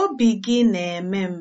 Obi gị na-eme m